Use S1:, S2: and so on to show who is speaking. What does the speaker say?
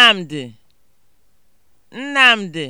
S1: nnamdi nnamdi